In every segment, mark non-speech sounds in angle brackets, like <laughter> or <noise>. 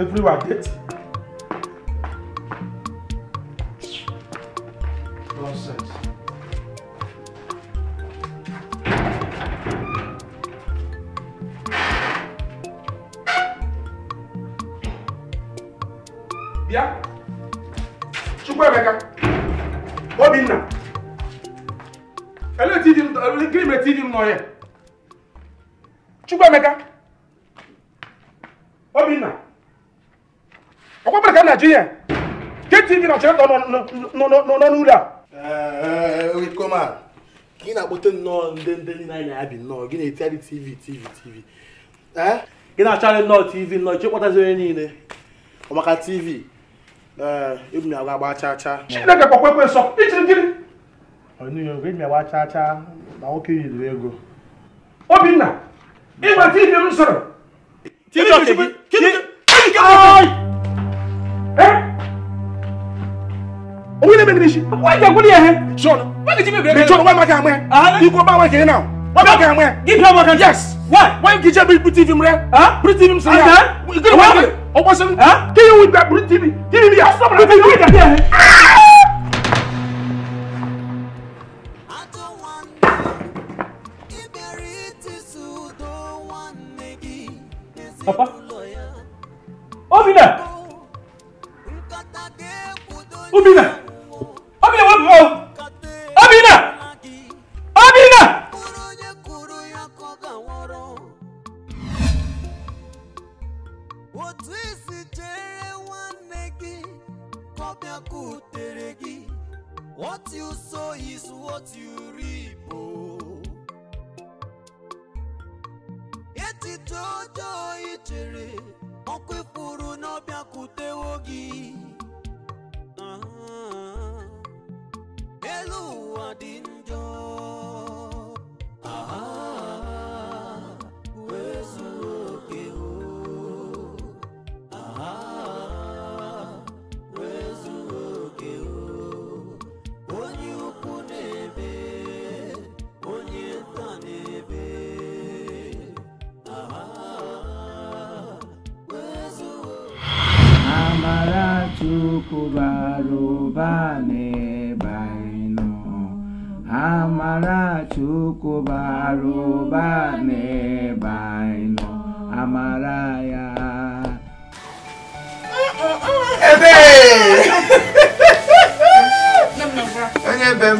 everywhere dirty. Nonsense. Bịa, Chukwuemeka, Obinna, ele ti di m gịnị TV no here. m n'ọhịa? Chukwuemeka, Obinna. ọkwa ka Naijiria tv na ọchịrịta nọ n'ụlọ a gị na-akpọte nnọọ ndị ndị niile anyị na nnọọ gị na-etigharị tv tv tv gị na-acharị nnọọ tv nnọọ chekpọtazi onye niile maka tv ebu m agba chaa chaa chineke kpọkwa ekwe nsọ ichiri agba chaa chaa nwoke yiri ego obinna ịgba tv m sọrọ owurɛ bɛ nimisi. wa jago ni yɛ hɛ. sɔɔni. wa k'i ti bɛ bɛrɛ. sɔɔni wa ma kɛ a mɛ. i ko ba wa kɛ na o. wa ma kɛ a mɛ. k'i bila wa kan. yes. wa wa k'i jɛ biri tv mu dɛ. ah biri tv mu sigi yan. i kiri wa kiri. o bɔ sɛbɛn. ah k'i y'o bila biri tv. tv bi yan. a sɔrɔ la k'i y'o jate yɛ hɛ. butere what you sow is what you reap echiche ọjọọ ị chere ọkụ ifuru n'ọbịakwutewo gị ah, elu ụwa bara n'ebe anyị nọ amara Chukwu n'ebe anyị nọ amara ya onye ebe m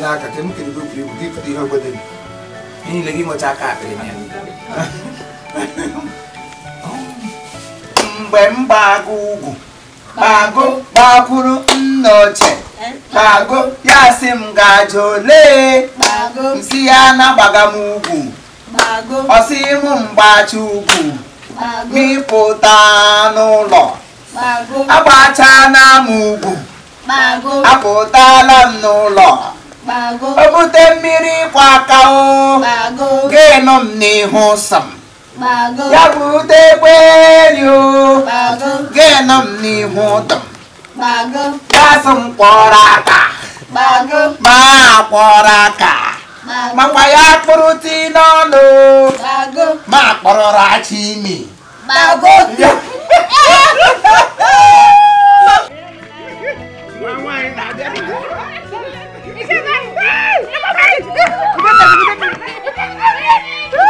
n'aka ka m kere bụbiri bụ ihe obodo niile gị nwecha aka akpịrị na <laughs> mgbe m gba ugwu kpago gbakwuru nna ochie eh? ya si m gaje olee msi ya na m ugwu ọsị m mgbachi ugwu mịpụta n'ụlọ agbachana m ugwu apụtala m n'ụlọ o bute mmiri ịkwa aka o ga-enọ m n'ihu sọ bịakwutekweri o gịnị m n'ihu ụtọ gasị m kpọrọ aka ma kpọrọ aka makwa ya kpụrụ ti n'ọnụ ma kpọrọra achi imi Woo!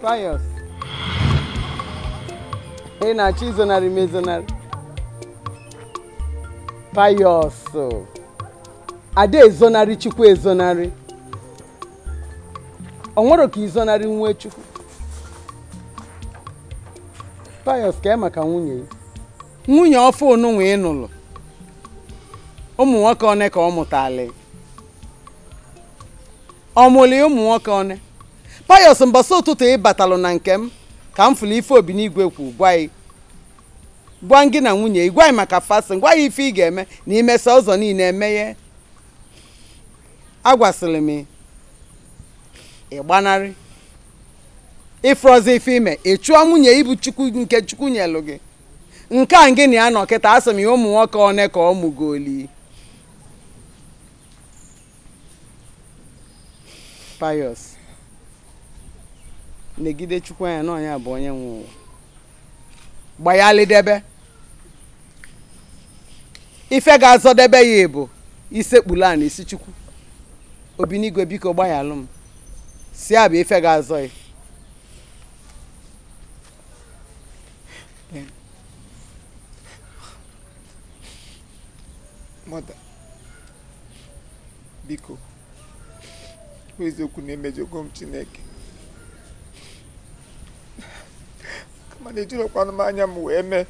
pious. Hey, na chisonary masonary. Pious. Ada ezonarị Chukwu ezonarị. Ọ nwere ka izonarị nwee Chukwu. Pious ka maka nwunye ya. Nwunye ọfụ onunwe ị nụrụ. Ụmụ nwoke one ka ọ mụtala. Ọ mụrụ ụmụ nwoke one. payos mbọsị ụtụtụ ị batalu na nke m ka m fụlụ ife obi n'igwe kwu gwa gị na nwunye ị gwa maka fasin gwa ya ife ị ga-eme na imesa ụzọ niile emeghe agwasịrị m ịgbanarị ịfrọzi ife ime ị chụọ nwunye ibu chukwu nke chukwu nyelụ gị nke a gị na ya nọ kịta asị m ya ụmụ nwoke one ka ọ mụgoli payos negide chukwu anya na ọnya bụ onye nwe ụwa gbanyalidebe ife ga-azọdebe ya bụ isekpulu a na isi chukwu obinigwe biko gbayalụ m si a ife ga-azọ ya mọda biko eziokwu na-emejọgo m chineke mana ejirokwana m anya m wee mee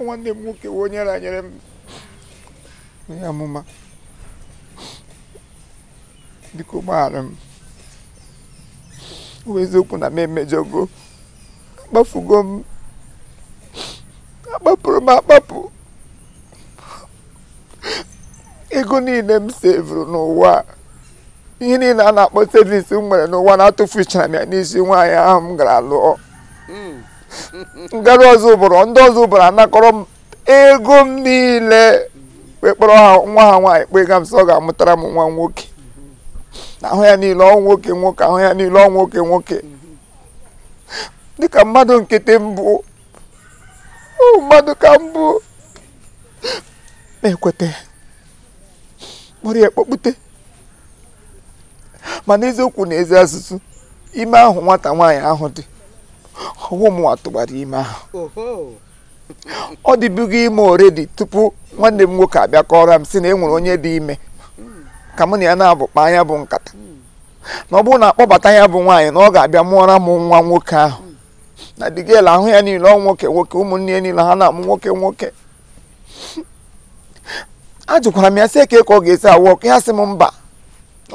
nwanne m nwoke wee onye ranyere m onye amụma biko gbaghara m bụ eziokwu na m emejọgo akpafugo m akpapụrụ m akpapụ ego niile m sevụrụ n'ụwa ihe niile a na-akpọ sevis m nwere n'ụwa na-atụfuchara m ya n'isi nwaanyị ahụ m gara lụọ ngara ọzọ ụbụrụ ndị ọzọ ụbụrụ anakọrọ m ego m niile wee ha nwa ha nwaanyị kpee ga m so ọ ga-amụtara m nwa nwoke ahụ ya niile ọ nwoke nwoke ahụ ya niile ọ nwoke nwoke dịka mmadụ nkịtị mbụ mmadụ ka mbụ na-ekweta kpọrọ ya mana eziokwu na ezi asụsụ ime ahụ nwata nwaanyị ahụ dị ọwụ m atụgbara ime ahụ ọ dịbugo ime oredi tupu nwanne m nwoke abịa kọrọ m si na e nwere onye dị ime ka mụ na ya na-abụkpa anya bụ nkata na ọ bụrụ na akpọbata ya bụ nwaanyị na ọ ga-abịa mụọra m nwa nwoke ahụ na digel ahụ ya niile ọ nwoke nwoke ụmụnne ya niile ha na-amụ nwoke nwoke ajụkwara m ya sị eke ka ọ ga-esi awụ ọkụ ya sị m mba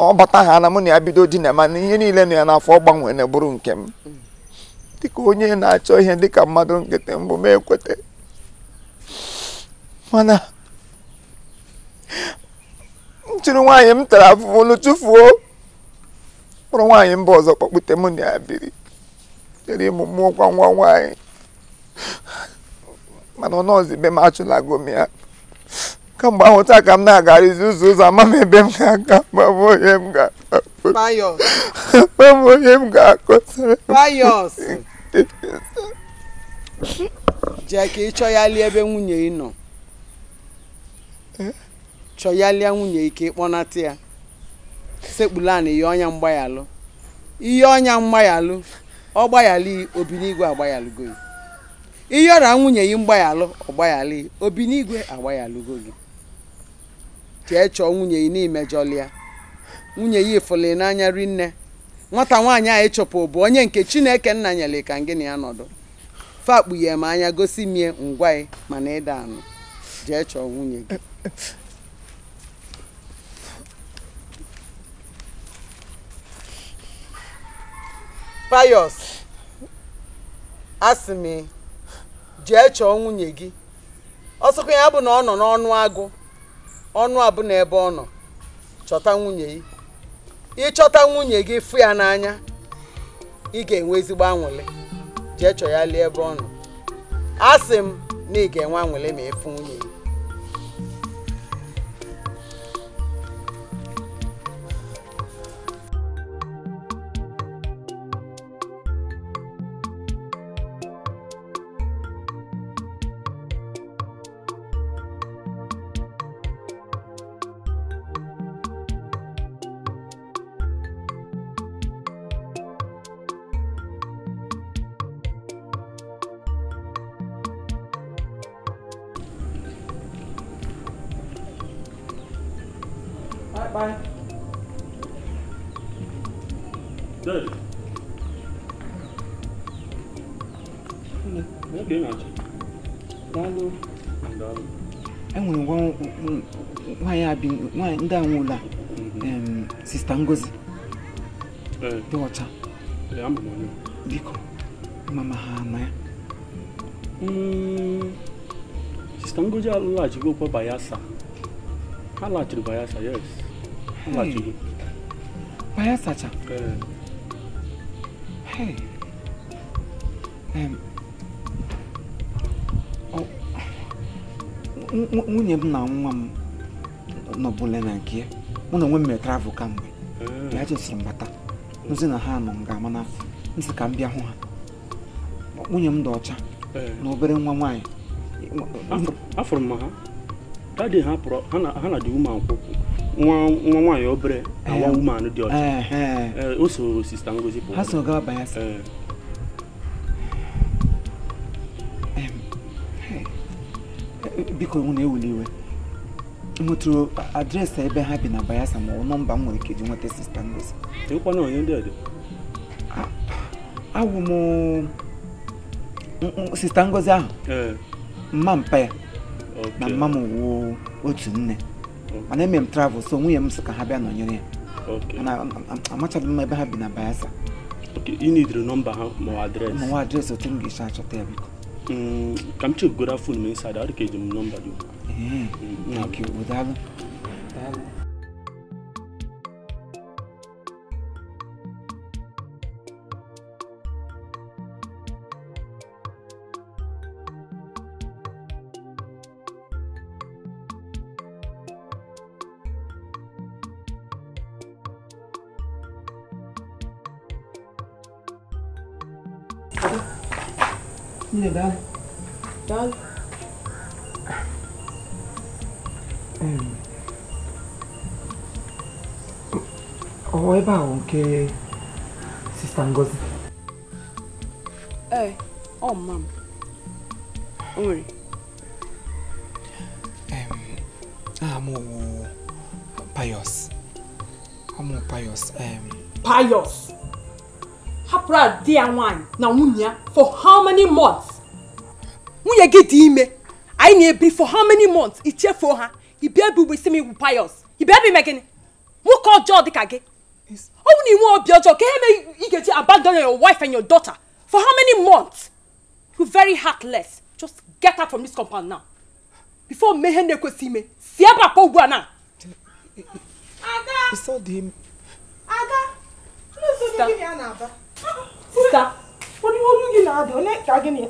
ọ bata ha na mụ na ya bido di na ma na ihe niile nọ ya n'afọ ọ gbanwere bụrụ nke m dịka onye na-achọ ihe dịka mmadụ nkịtị mbụ m ekweta mana m nwaanyị m tara afụfụ olu o kpọrọ nwaanyị mba ọzọ kpọkpute m na ya biri chere ịmụ mmụọ kwa nwa nwaanyị mana ọ nọọzi be m achụlago m ya kamgbe ahụ taa ka m na-agarizi ụzọ ụzọ ama m ebe m ga-aga mabụ onye m ga-akpọbụ onye m ga-akọsara ebe nwunye ị nọ chọyalịa nwunye ike ịkpọnata ya sekpulana ihe ọnya mgbayalụ ihe ọnya mgbayalụ ọ gbaghali obinigwe agbaghalụgo gị ihe ọra nwunye gị mgbayalụ ọ gbaghali obinigwe agbaghalụgo gị jee chọọ nwunye ya n'imejọlịa nwunye ya ifụli n'anya rinne nwata nwaanyị a ịchụpụ bụ onye nke chineke nna nyere ka na ya nọdụ fakpughe m anya gosi mie ngwa ị mana ịda anụ jee chọọ nwunye gị payos asị m jee chọọ nwunye gị ọsọkwa ya bụ na ọ nọ n'ọnụ agụ ọnụ abụ na ebe ọ nọ chọta nwunye gị ịchọta nwunye gị fụ ya n'anya ị ga-enwe ezigbo anwụlị jee chọ ya lie ebe ọ nọ asị m na ị ga-enwe anwụlị ma ịfụ nwunye gị enwere nwaanyị ndị a nwụla sista Ngozi dị ọcha biko mama ha ama ya hmm, sista Ngozi alụghachigo kwa Bayelsa ha laghachiri Bayelsa yes ha laghachigo Bayelsa cha nwunye m na nwa m nọbụla na nke mụ na onwe m mere travel kamgbe mm. ya jesiri m bata na ha nọ m ga-ama na nsị ka m bịa hụ ha nwunye m dị ọcha eh. na obere nwa nwaanyị afụrụ m ha dadị ha pụrụ ha na dị uman kwụkwụ nwa nwaanyị obere awa uman eh. dị ọcha eh, o soro sista ngozi ha so gaa banyasa biko nwụ na-ewuli iwe nwetụrụ adreesị ebe ha bi na bayasa ma ọ nọmba m nwere ike nweta sista Ngozi awụ m sista Ngozi ahụ mma mpa ya na mma m wuo otu nne mana eme m travel so nwunye m sị ka ha bịa nọnyere ya amachaghị m ebe ha bi na Bayelsa ị nidiri nọmba ha ma adreesị otu m ga-esi achọta ya biko Come to guda fun mai sada har ke jim nomba do eh Yeah, that. Mkeba nke Sister Ngozi. Hey, oh ma'am. Onwere. Um, ah, pious. Pius. Amo pious. Um, pious. Hapụrụ adị ya nwaanyị na nwunye ya for how many months? Unya, get dị ime. Anyị na-ebiri for how many months? Ichefuo ha. Ị bịa ebe ugbo isi m igwu Pius. Ị bịa ebe ime gịnị? Nwoke ọjọọ dịka kage. you want to build your can you get to abandon your wife and your daughter for how many months? You're very heartless. Just get out from this compound now. Before Mehende could see me, see about Pogwana. Ada! him. Ada! Sister. What do you looking at? Don't let dragging me.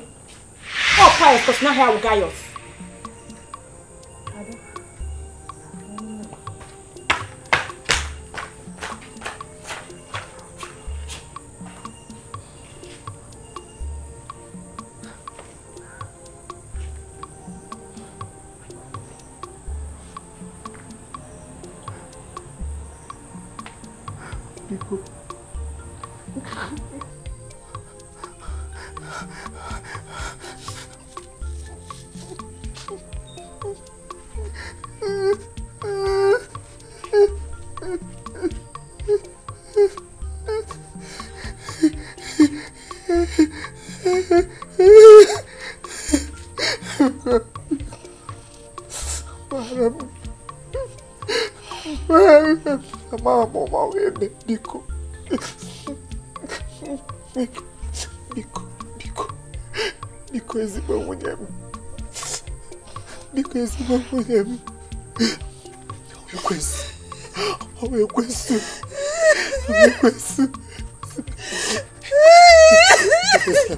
Oh, Pius, because now here will go. us. Mama, mama, wende, Biko. Biko, Biko. Biko, ezima mwenyemu. Biko, ezima mwenyemu. Uyekwesi. Uyekwesi. Uyekwesi. Uyekwesi.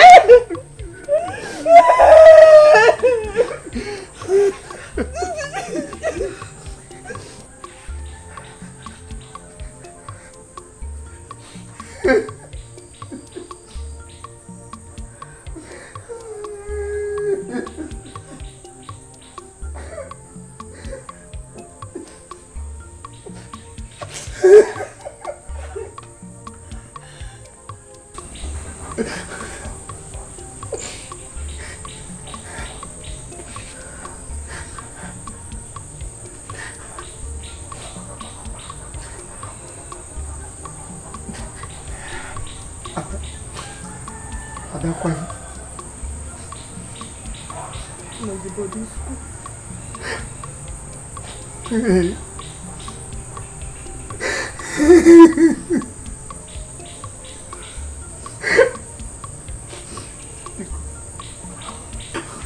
Adakwa. No, the body school.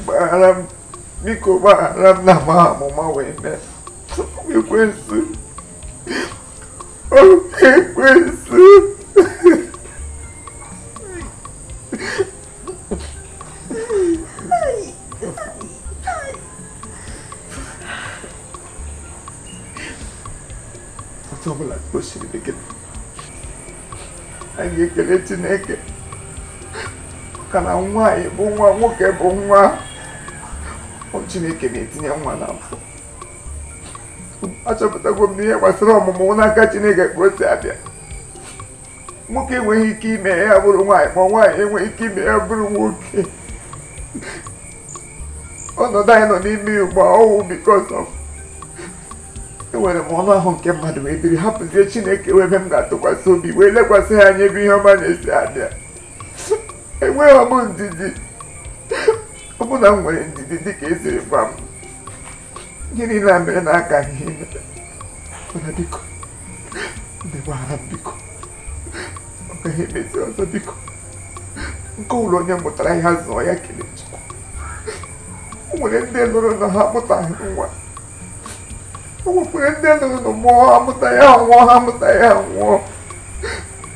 Baram, biko baram na maa mo ma wene. Biko nsu. Oh, biko anyị ekele Chineke maka na nwa anyị bụ nwa nwoke bụ nwa Chineke na-etinye nwa na n'afọ achọpụtago m n'ihe gbasara ọmụmụ n'aka Chineke ka o si abịa nwoke enweghị ike ime ya bụrụ nwaanyị ma nwaanyị enweghị ike ime ya bụrụ nwoke ọnọdụ anyị nọ n'ime ugbo a ọwụ because of enwere m ọnụ ahụ nke mmadụ wee biri hapụzie chineke wee mee m ga-atụkwasị obi wee lekwasị ya anya ebe ihe ọma na-esi abịa enweghị ọmụ ndidi ọbụna m nwere ndidi dịka esiri gwa m gịnị na mere na aka ihe mana m biko ọ emezi ọzọ biko nke ụlọ onye mụtara ihe zụọ ya kele chukwu o nwere ndị lụrụ na ha mụtaghị nwa ಉಪಯೋಗದಲ್ಲೂ ಮೋಹ ಮುತಾಯ ಮೋಹ ಮುತಾಯ ಮೋ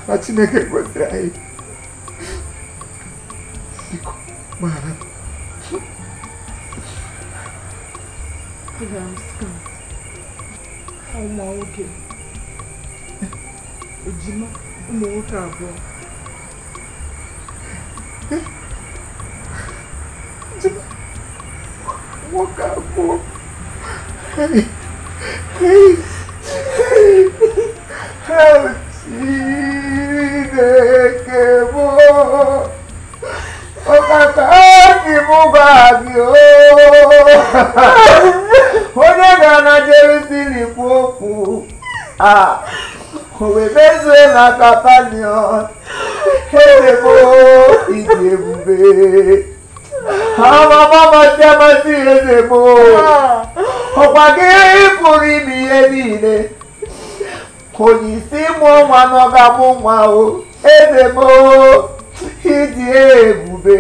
ರಚನೆಗೆ ಗೊತ್ತೇ ಆಯಿ ಭಾರತ್ ụmụ nwoke ejima ụmụ nwoke abụọ nwoke abụọ kéèké mọ́ ó kàkà kí mú báàgì ó ó dẹ́gbà nàìjíríà sí nìkú òkú òwe mẹ́sẹ̀ na kapanion ezebo ìdí ebube àwọn ọmọ tí a máa sí ezebo ọ̀pá gé pụrụ ime ihe niile kò ní sí mú nwa n'ọga mụ nwa o eze m ịdị ebube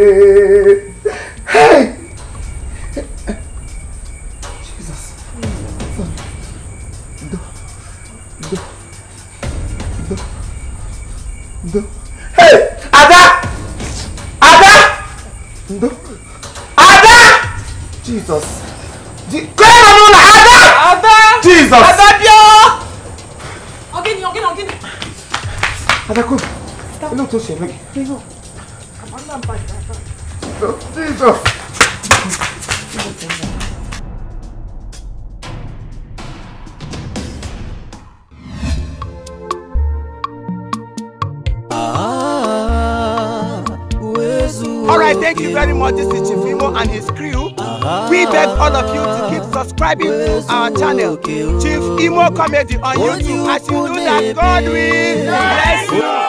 ndo hey ada ada ndo ada jesus kọrọ na n'ụlọ ada ada jesus ada bịa ogini ogini ogini ada kom inú tó ṣe mí. Jesus. All right, thank you very much. This is Chifimo and his crew. We beg all of you to keep subscribing to our channel, Chief Imo Comedy on YouTube. As you do that, God will bless you.